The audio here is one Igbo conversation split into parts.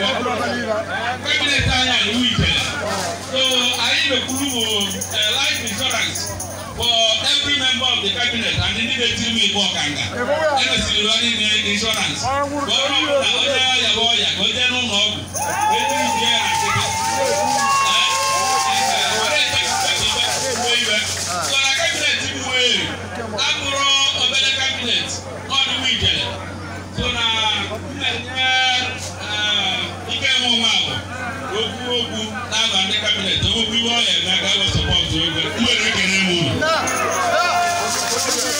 family tire ìlú Ifẹ̀ so ayélujáfúrúwò life insurance for every member of the cabinet and the leader team ìbọn kànga ẹnì sì lọ insurance gbọ́dọ̀ ọ̀dà ọ̀dà yàgbọ́ yàgbọ́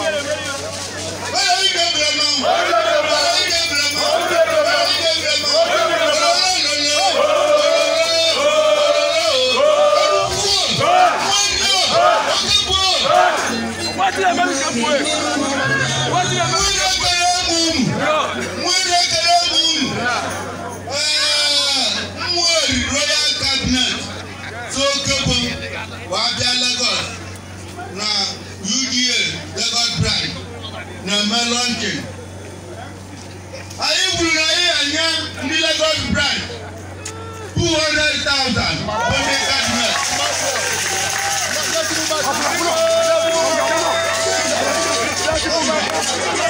my melonkin anyị kwuru na anyị enye ndị Lagos branch 200,000 onye kabinet Thank you.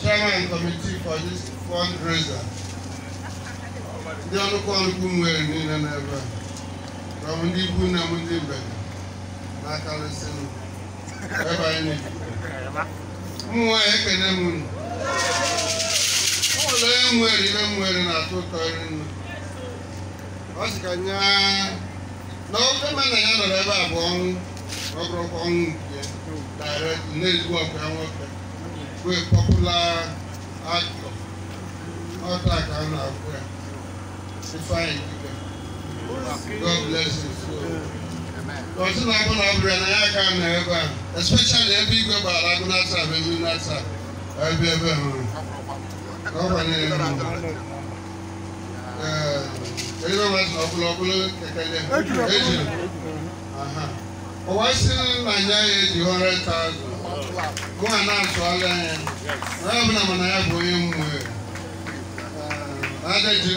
chairman committee for this fundraiser ndị ọnụkọ ọnụkwu nwere niile n'ebe a ka ndị ikwu na m ndị mgbede na-akarịsịnụ ebe anyị ụmụ nwaanyị ekene m unu ụlọ onye nwere ihe m nwere na-atụ ụtọ iri nnu ọ sị ka nye na ofe mana ya nọrọ ebe a bụ ọnwụ ọ bụrụkwa ọnwụ nke direct na-ezigbo ọkwa nwoke to popular actor. Not that kind of friend. It's fine. God bless you. So, Kọ̀tún agúnà abúlé náà yá ká nà ẹ bá especially ẹbí ìgbé bá alágúnà tà bẹ́bí nà tà ẹbí ẹbẹ̀ hàn. Ọ̀pọ̀ ní ẹ̀rọ. Ẹ̀yin náà wọ́n sọ ọ̀pọ̀lọ̀ ọ̀pọ̀lọ̀ kẹ̀kẹ́ dẹ̀. Ẹ̀jù. Ọ̀wá sí Nàìjíríà yẹ di hundred thousand. gụ a na-azụọla ya na ọbụla mana ya bụ onye mmụọ ejiri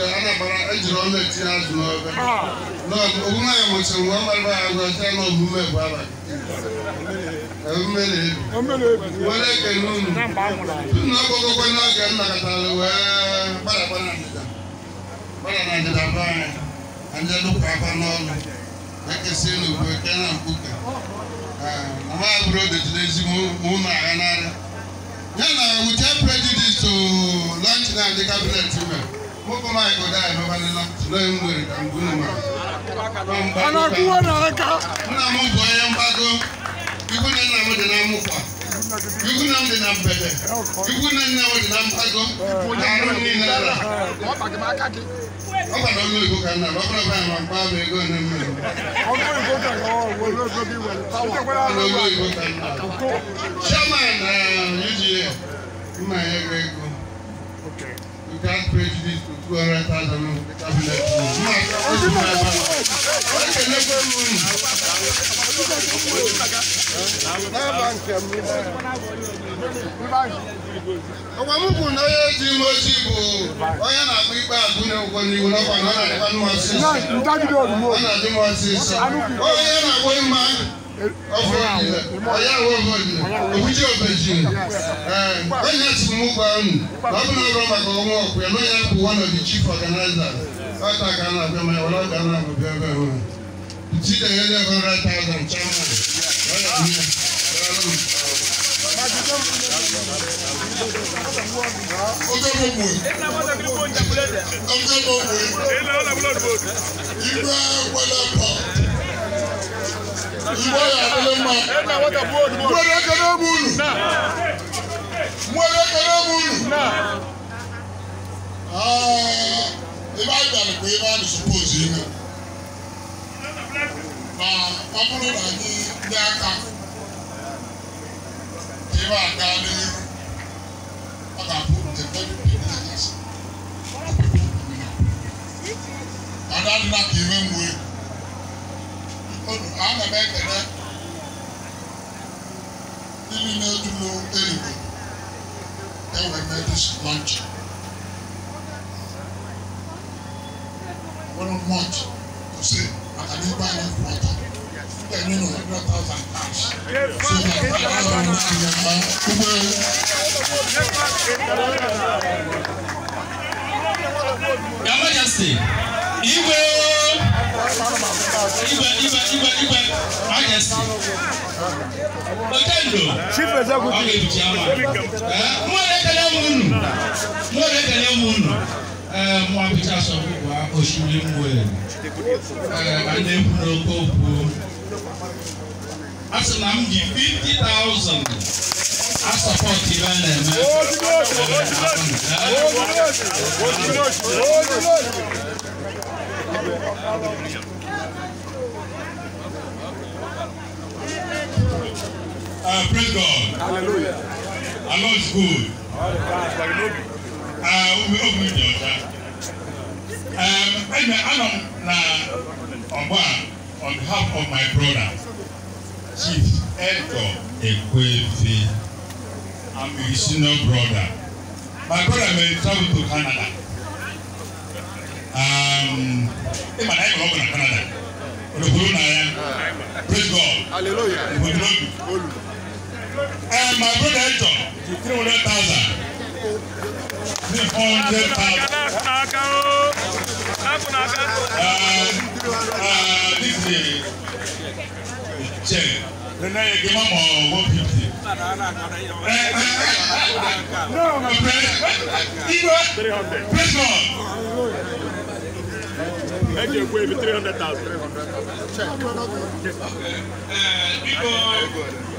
ọnụ etinye azụ n'obe ogbuna ya mụsịrị ọ gbarịba ya na omume bụ abalị were ekele unu na ọkpọgokwe n'oge m nakọtara wee gbadakwana ndịda gbada na ndịda be anyị na ndị dụkwa aka n'ọnụ ekesị eke na mkpuke mama aburo detụla ezigbo ụmụ agha n'ara ya na wute prejudice to lọnch na ndị kabinet mere mụkọ maịkụ dai nọbanịla tụlee nwere ka mgbu ma nna m bụ onye mgbago ikwu na nna m dị na mụkwa yugu nam de nam bɛtɛ yugu nam na o de nam agɔm aro ni na ra ɔba dɔn n'o ko kan na ɔba dɔn kan na ɔba bɛ ko ne mɛ. ɔba dɔn ko kan na ɔba bɛ ko bi wɛlɛ pawa ɔba dɔn ko kan na. sɛma na yiri yɛ n ma yɛ bɛ ko. Okay. You can't prejudice to 200,000 in the cabinet. na onye ji ime ojii bụ onye na-akpụ ikpe abụna ụgwọ n'iwu n'ọkwa na ọ na-adịkwa mmasị ọ na-adị m ọsịsọ onye na-agwọ mma ọfọlọnyẹ ọyáwó ọfọlọnyẹ òwúdí ọbẹjì ẹnyẹ tìmú kwanu bàbá náà bá màkà ọmọ ọkọ ẹ lọyẹ kó wọn nà bí chief organizer ọta gánà bẹẹ mẹ ọlọ gánà bẹẹ bẹẹ wọn ti dẹ yẹ lẹfọn rẹ tààzàn chairman ọyọ mi ọjọ́ gbogbo ọjọ́ gbogbo ìgbà wọlé pọ̀ mboya alema mboya kanabulu mboya kanabulu ibà gbàgbé pé ibà mi suppose yìí náà na ọbụrụ na anyị ndị aka ibà aga n'ihu ọ ga the very big legacy. Ada nna ka iwe ana m ekele ndị niile dị n'Erigbo enwere m edis lọnchị nwere mọch kwụsị maka na igwe anyị kwụ ọtọ ndị enyi na ọdụ ọtọ ọtọ cash so na ọrụ na-anya mma ụgbọelu Your Majesty, Igwe ibẹ̀ ibẹ̀ ibẹ̀ ibẹ̀ ayẹsi otendo ọkè bìjàmà mú ọ̀rẹ́ kẹlẹ́ mu nù mú ọ̀rẹ́ kẹlẹ́ mu nù mú abidjan sọ fún wa oṣù ní di fifty thousand asọpọtì bá nà ẹmẹ ẹmẹ Uh, praise God. Hallelujah. Our Lord is good. Obi obi open ọcha. Ebe anọ m na ọgba on behalf of my brother Chief Edgar Ekwefe. I'm his senior brother. My brother may travel to Canada. Ịma na ịma ọgwụ na Canada. Olùkúrú na ya. Praise God. Hallelujah. Ìbòdì lóbi and my brother Hector to three hundred thousand. three hundred this is the check. Then I give him one fifty. No, my friend. Press on. Thank you, Wave, 300,000. Check. Uh, people,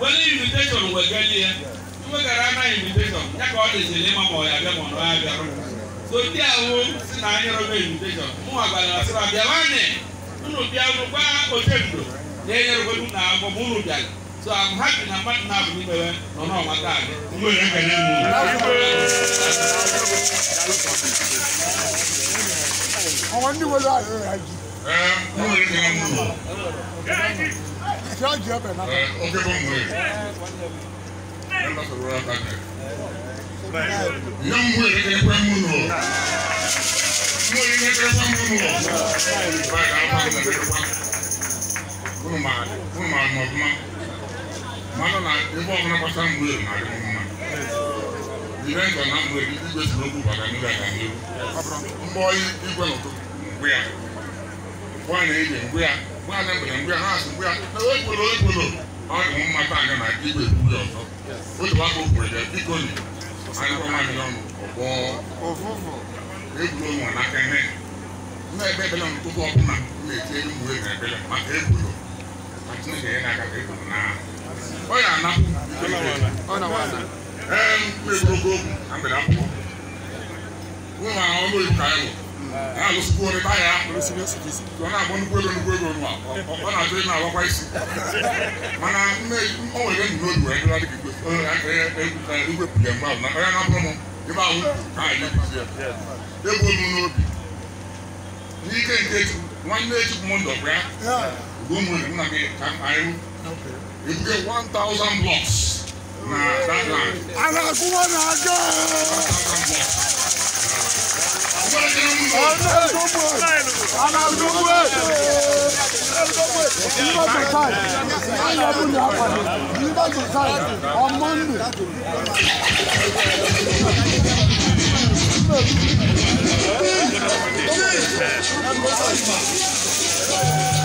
wani invitation wɔ gani yɛ tumekara ana invitation nyɛ ka ɔde sele ma ma ɔyɛ abɛ ma ɔno abɛ ro so di awo si an anyɔrɔ bɛ invitation mu agbala na seba bia wani nnu bia no gba ote ndo yɛ nyɛrɛ bɛ dum na abɔ mu nu bia so i'm happy na mmadụ na abụ n'ime ya na ọnụ ọma taa gị mgbe ya ka na-emu ọnwa ndị nwere ahụ ya ji ee mgbe ya ka na-emu charge you up another. Uh, okay, don't worry. Members of Royal Cabinet. Young way, they can move on. No, you can't come move on. Right, I'm not going to get one. Kuruma, kuruma, mama. Mama, na, ibo ako na pasang buhay na rin mama. Ilan ka na buhay, ibo ba sila ko baka nila ka niyo? Mboy, ibo na to. Buya. Buya na ibo, buya. bóyá ní mbẹ̀rẹ̀ mbóyá náà sì mbóyá ó ìgbòlò ó ìgbòlò ọ̀ ní mo máa bá àná náà kí ìgbè kúrò ọ̀tọ̀ ó ti wá kó kúrò jẹ bí kò ní àyẹ̀kọ́ máa ní lọ́nu ọ̀bọ̀ òfófó égbòlò wọn n'aka ẹ̀hẹ́ ní ẹgbẹ́ bẹ́lẹ̀ wọn tó bọ́ ọ̀bùn náà ní ètí ẹni mú ẹgbẹ́ bẹ́lẹ̀ màkà égbòlò àti ní ẹ̀yẹ́ n'aka égbòlò náà ọ yà àná ẹ̀ẹ́n kú égbòlò gbòògùn àmbẹ̀rẹ̀ àpò wọn àwọn ọmọ ìlú kàá ẹ̀wọ̀ ya lo suku wani baya wani sini osu kisi wọn a bọ nnukwu ego nnukwu isi mana mme ọ nwere nnukwu odu wee ndịra dịka igwe pụlịa mgbe ahụ na ọ ya na-abụrụ m ebe ahụ ka anyị na-ebizi ya ebuo m n'obi n'ike nke nwanne echukwu m ndọ bịa ugo m nwere nna gị ka anyị ebuge 1000 blocks na that land. Ana kuma aga on Monday. Don't